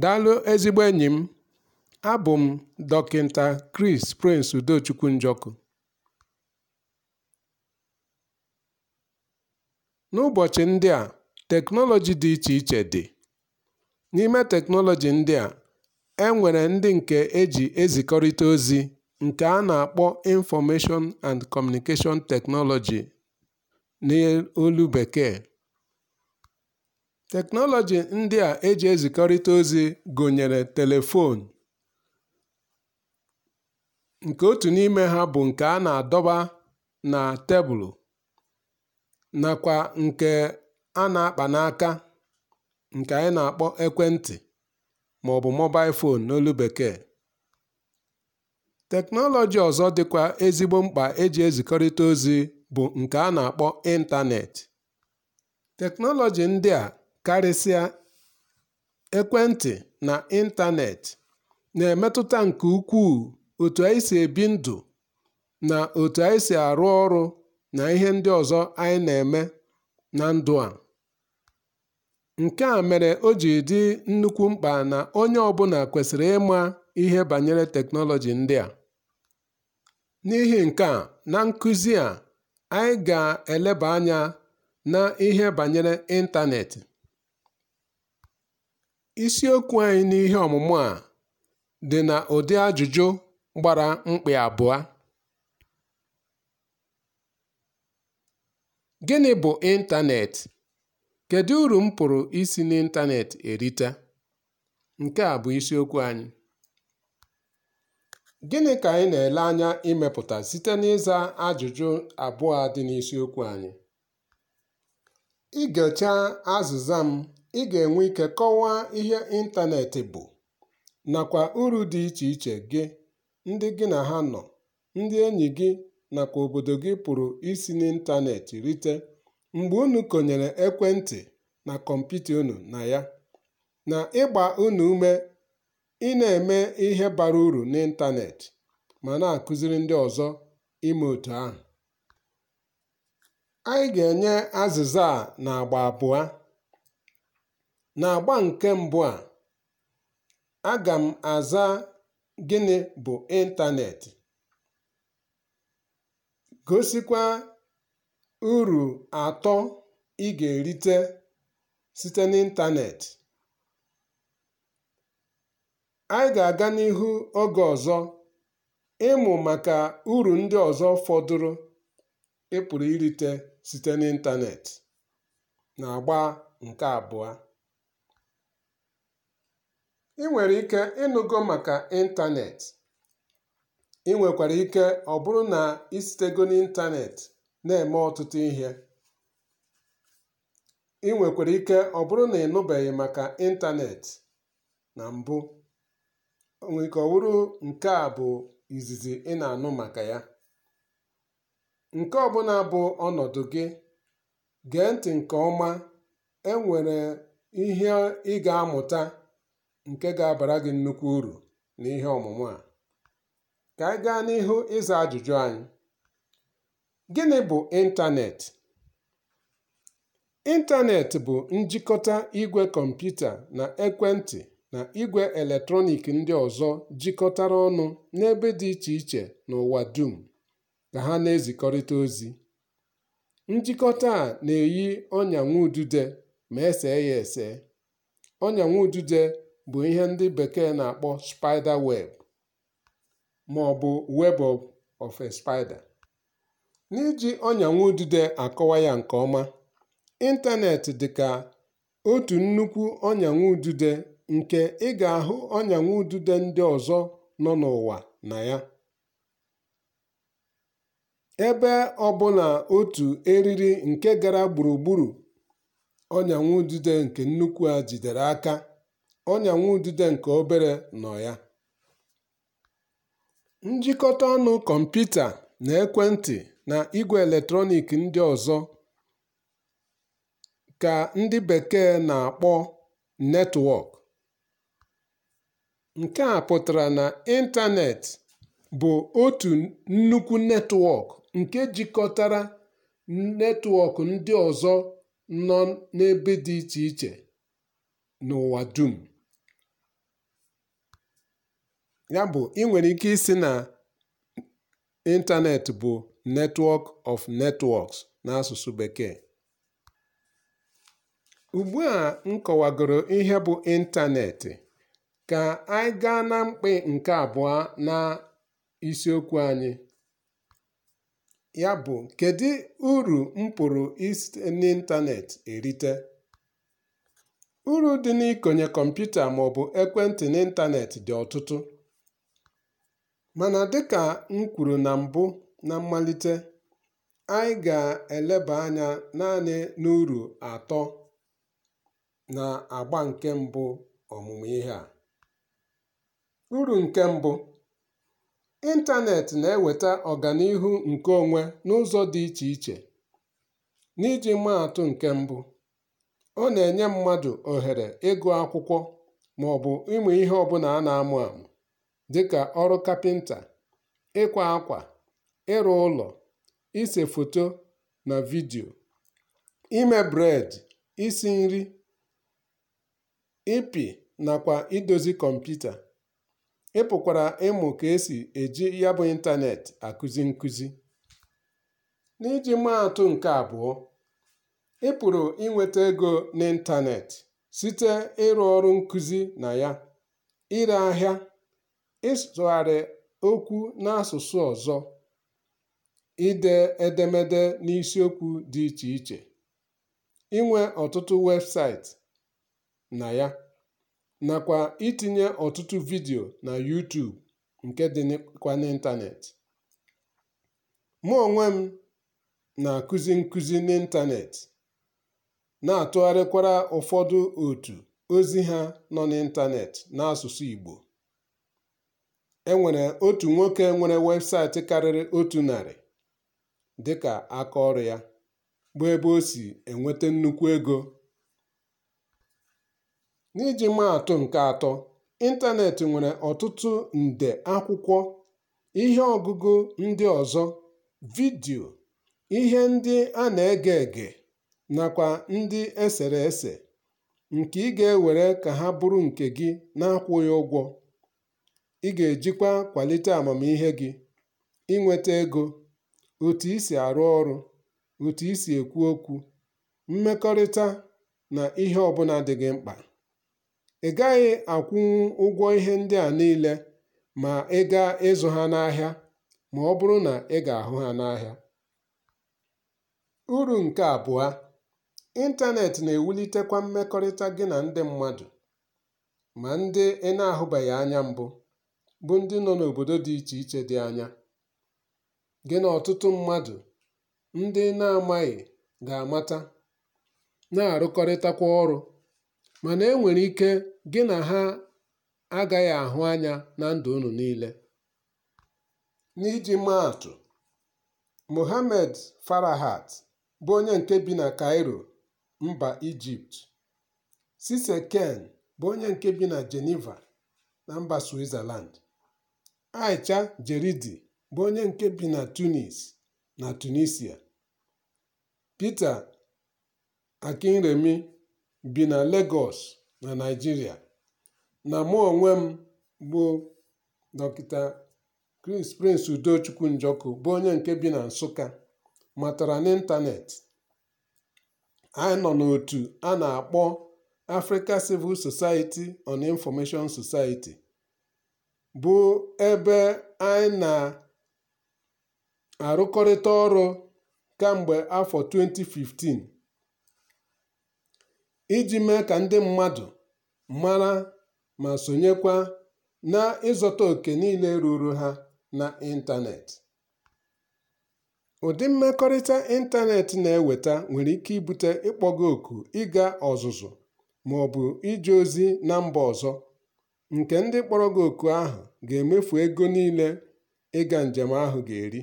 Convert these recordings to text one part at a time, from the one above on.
Daalụ ezigbo enyi m, abụ m Dọkịta Kris Prince Udochukwu Njọkụ. N'ụbọchị ndị a teknọlọji dị iche iche dị. N'ime teknọlọji ndị a, e ndị nke eji ezikọrịta ozi nke a na-akpọ Information and Communication Technology n'olu bekee. Teknọlọji ndị a eji ezikọrịta ozi gụnyere telefonu nke otu n'ime ha bụ nke a na-adọba na tebụl, nakwa nke a na-akpa n'aka (nke anyị na-akpọ ekwentị maọbụ "mobile fon n'olu bekee). Teknọlọji ọzọ dịkwa ezigbo mkpa eji ezikọrịta ozi bụ nke a na-akpọ ịntanetị. Teknọlọji ndị a Karịsịa, ekwentị na ịntanetị na-emetụta nke ukwuu otu anyị si ebi ndụ na otu anyị si arụ ọrụ na ihe ndị ọzọ anyị na-eme na ndụ a. Nke a mere o ji dị nnukwu mkpa na onye ọbụla kwesịrị ịma ihe banyere teknọlọji ndị a. N'ihi nke a, na nkụzi a, anyị ga-eleba anya na ihe banyere ịntanetị. Isiokwu anyị n'ihe ọmụmụ a dị na ụdị ajụjụ gbara mkpị abụọ: Gịnị bụ ịntaneetị? Kedu uru m pụrụ isi n'ịntaneetị erite? Nke a bụ isiokwu anyị. Gịnị ka anyị na-ele anya imepụta site n'ịza ajụjụ abụọ dị n'isiokwu anyị? Ị gechaa azịza m ị ga-enwe ike kọwaa ihe ịntanetị bụ nakwa uru dị iche iche gị, ndị gị na ha nọ, ndị enyi gị nakwa obodo gị pụrụ isi n'ịntȧnẹ̀tị̀ rite mgbe unu konyere ekwentị na kọmputa unu na ya na ịgba unu ume ị na eme ihe bara uru n'ịntȧnẹ̀tị̀ ma na akụziri ndị ọzọ ime otu ahụ. Anyị ga-enye azịza a n'agba abụọ. N'agba nke mbụ a, aga m aza gịnị bụ ịntaneetị, gosikwa uru atọ ị ga-erite site n'ịntaneetị. Anyị ga-aga n'ihu oge ọzọ ịmụ maka uru ndị ọzọ fọdụrụ ị pụrụ irite site n'ịntaneetị. N'agba nke abụọ ị nwere ike ịnụgo maka ịntaneetị ị nwekwara ike ọ bụrụ na ị sitego na-eme ọtụtụ ihe ị nwekwara ike ọ bụrụ na ị nụbeghị maka ịntaneetị na mbụ nwere ọ nke a bụ izizi ị na-anụ maka ya nke ọbụla bụ ọnọdụ gị gee ntị nke ọma enwere ihe ị ga-amụta nke ga-abara gị nnukwu uru n'ihe ọmụmụ a. Ka anyị gaa n'ihu ịza ajụjụ anyị. Gịnị bụ ịntaneetị? Ịntaneetị bụ njikọta igwe kọmputa na ekwentị na igwe eletrọniik ndị ọzọ jikọtara ọnụ n'ebe dị iche iche n'ụwa dum ka ha na-ezikọrịta ozi. Njikọta a na-eyi ọnyanwụudide ma e ya ese. Ọnyanwụudide bụ ihe ndị bekee na-akpọ spider web maọbụ Web of a Spider. N'iji ọnyanwudide akọwa ya nke ọma, ịntanetị dị ka otu nnukwu ọnyanwudide nke ị ga-ahụ ọnyanwudide ndị ọzọ nọ n'ụwa na ya. Ebe ọ ọbụla otu eriri nke gara gburugburu ọnyanwudide nke nnukwu a jidere aka ọnyanwudide nke obere nọ ya. Njikọta ọnụ kọmputa na ekwentị na igwe eletrọniik ndị ọzọ ka ndị bekee na-akpọ netwọk. Nke a pụtara na ịntanetị bụ otu nnukwu netwọk nke jikọtara netwọk ndị ọzọ nọ n'ebe dị iche iche n'ụwa dum. Yabụ ị nwere ike isi na ịntaneetị bụ "network of networks" n'asụsụ Bekee. ugbu a m kọwagoro ihe bụ ịntaneetị, ka anyị gaa na mkpị nke abụọ na isiokwu anyị, ya bụ "Kedu uru m pụrụ isi n'ịntaneetị erite?" Uru dị n'ikonye kọmputa maọbụ ekwentị n'ịntanetị dị ọtụtụ. Mana dịka m kwuru na mbụ na mmalite, anyị ga-eleba anya naanị n'uru atọ na agba nke mbụ ọmụmụ ihe a. Uru nke mbụ, ịntanetị na-eweta ọganihu nke onwe n'ụzọ dị iche iche. N'iji mmadụ nke mbụ, ọ na-enye mmadụ ohere ịgụ akwụkwọ ma ọ bụ ịmụ ihe ọbụla a na-amụ amụ. Dịka ọrụ kapịnta, ịkwa akwà, ịrụ ụlọ, ise foto na vidio ime bred isi nri, ịpị nakwa idozi kọmputa, ịpụkwara ịmụ ka esi eji ya bụ ịntanetị akụzi nkụzi. N'iji maa nke abụọ ịpụrụ ị ego inwētē site ịrụ ọrụ nkụzi na ya, ire ahịa ịsụgharị okwu n'asụsụ ọzọ, ide edemede n'isiokwu dị iche iche, inwe ọtụtụ websaịtị na ya, nakwa itinye ọtụtụ vidiyo na yuutuub nke dị dịkwa n'ịntanetị Mụ onwe m na-akụzi nkụzi n'ịntaneetị, na-atụgharịkwara ụfọdụ otu ozi ha nọ n'ịntaneetị n'asụsụ Igbo. Enwere otu nwoke nwere webụsaịtị karịrị otu narị dịka aka ọrụ ya bụ ebe o si enweta nnukwu ego. N'iji maa nke atọ, ịntanetị nwere ọtụtụ nde akwụkwọ, ihe ọgụgụ ndị ọzọ, vidio ihe ndị a na-ege ege nakwa ndị esere ese, nke ị ga-ewere ka ha bụrụ nke gị na-akwụ na-akwụghị ụgwọ. Ị ga-ejikwa kwalite amamihe gị, inweta ego, otu isi si arụ ọrụ, otu isi si ekwu okwu, mmekọrịta na ihe ọbụla dị gị mkpa. Ị gaghị akwụnwu ụgwọ ihe ndị a niile ma ị gaa ịzụ ha n'ahịa ma ọ bụrụ na ị ga-ahụ ha n'ahịa. Uru nke abụọ, ịntanetị na-ewulitekwa mmekọrịta gị na ndị mmadụ, ma ndị ị na-ahụbeghị anya mbụ. bụ ndị nọ n'obodo dị iche iche dị anya, gị na ọtụtụ mmadụ ndị na-amaghị ga-amata, na-arụkọrịtakwa ọrụ, mana e nwere ike gị na ha agaghị ahụ anya na ndụ unu niile. N'iji maa mohamed farahat bụ onye nke bi na Cairo, mba Ijipt, Cissy Ken bụ onye nke bi na Geneva na mba Switzerland. Aicha Jeridi bụ onye nke bi na Tunis na Tunisia, Pita Akinremi bi na Lagos na Naijiria, na mụ onwe m bụ Dr. Prince Udochukwu Njọkụ bụ onye nke bi na Nsụka, matara n'ịntanetị Anyị nọ n'otu a na-akpọ Africa Civil Society on Information Society. bụ ebe anyị na-arụkọrịta ọrụ kemgbe afọ 2015 iji mee ka ndị mmadụ mara ma sonyekwa na ịzụta oke niile ruru ha na ịntanetị. Ụdị mmekọrịta ịntanetị na-eweta nwere ike ibute ịkpọga oku ịga ọzụzụ ma ọ bụ ije ozi na mba ọzọ. nke ndị kpọrọ gị oku ahụ ga-emefu ego niile ịga njem ahụ ga-eri,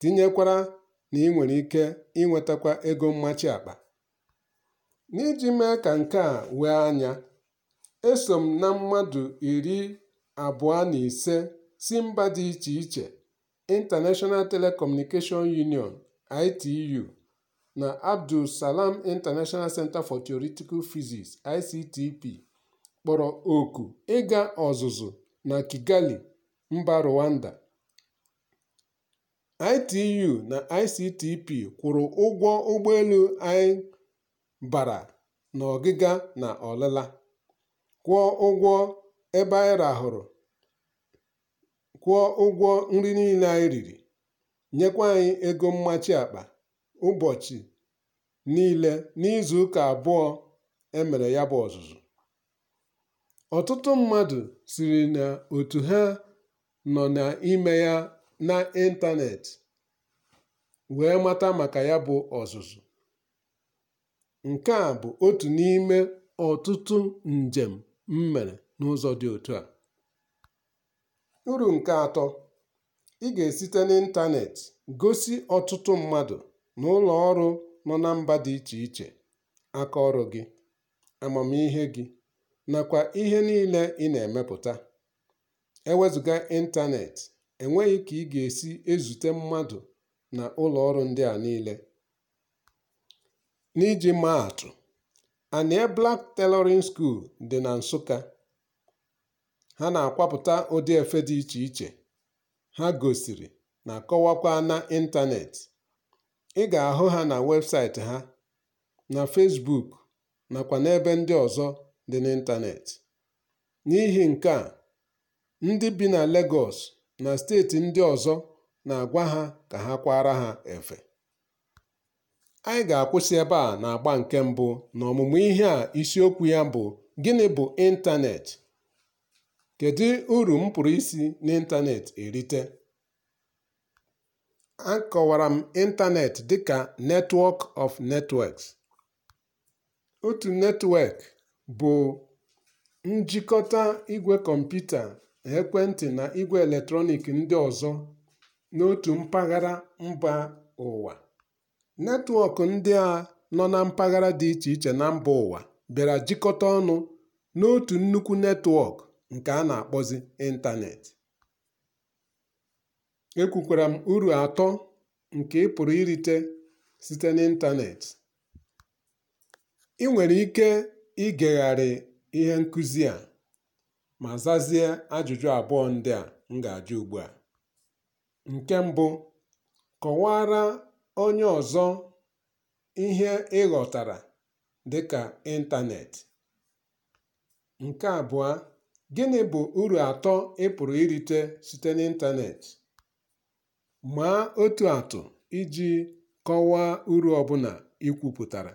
tinyekwara na ị nwere ike inwetakwa ego mmachi akpa. N'iji mee ka nke a wee anya, eso m na mmadụ iri abụọ na ise si mba dị iche iche International Telecommunication Union (ITU) na Abdulsalam International Centre for Theoretical Physics (ICTP) kpọrọ oku ịga ọzụzụ na Kigali, mba Rwanda. ITU na ICTP kwụrụ ụgwọ ụgbọelu anyị bara n'ọgịga na ọlịla, kwụọ ụgwọ ebe anyị rahụrụ, kwụọ ụgwọ nri niile anyị riri, nyekwa anyị ego mmachi akpa ụbọchị niile n'izuụka abụọ emere ya bụ ọzụzụ. Ọtụtụ mmadụ siri na otu ha nọ n'ime ya n'ịntaneetị wee mata maka ya bụ ọzụzụ. Nke a bụ otu n'ime ọtụtụ njem m mere n'ụzọ dị otu a. Uru nke atọ, ị ga-esite n'ịntaneetị gosi ọtụtụ mmadụ na ụlọ ọrụ nọ na mba dị iche iche aka ọrụ gị, amamihe gị nakwa ihe niile ị na-emepụta. Ewezụga ịntanetị enweghị ka ị ga-esi ezute mmadụ na ụlọ ọrụ ndị a niile. N'iji maa atụ, blak Black Tailoring dị na Nsụka. Ha na-akwapụta ụdị efe dị iche iche ha gosiri na kọwakwa ịntanetị. Ị ga-ahụ ha na webụsaịtị ha, na fesbuk nakwa n'ebe ndị ọzọ dị n'ịntanetị. N'ihi nke a, ndị bi na Legọs, na steeti ndị ọzọ na-agwa ha ka ha kwara ha efe. Anyị ga-akwụsị ebe a na-agba nke mbụ na ọmụmụ ihe a isiokwu ya bụ "Gịnị bụ ịntaneetị? Kedu uru m pụrụ isi n'ịntaneetị erite?" a kọwara m ịntaneetị dịka netwọk of networks", otu netwọk bụ njikọta igwe kọmputa, ekwentị na igwe eletrọnịkị ndị ọzọ n'otu mpaghara mba ụwa. Netwọk ndị a nọ na mpaghara dị iche iche na mba ụwa bịara jikọta ọnụ n'otu nnukwu netwọk nke a na-akpọzi ịntaneetị. Ekwukwara m uru atọ nke ị pụrụ irite site n'ịntaneetị. ị nwere ike igegharị ihe nkụzi a ma zazie ajụjụ abụọ ndị a m ga-ajụ ugbu a. Nke mbụ, kọwaara onye ọzọ ihe ị ghọtara dịka ịntaneetị. Nke abụọ, gịnị bụ uru atọ ị pụrụ irite site n'ịntaneetị? Maa otu atụ iji kọwaa uru ọbụla i kwupụtara.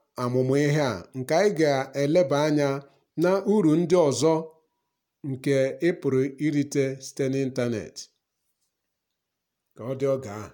Amụma ihe a nke anyị ga-eleba anya na uru ndị ọzọ nke ịpụrụ irite site n'ịntanetị Ka ọ dị oge ahụ.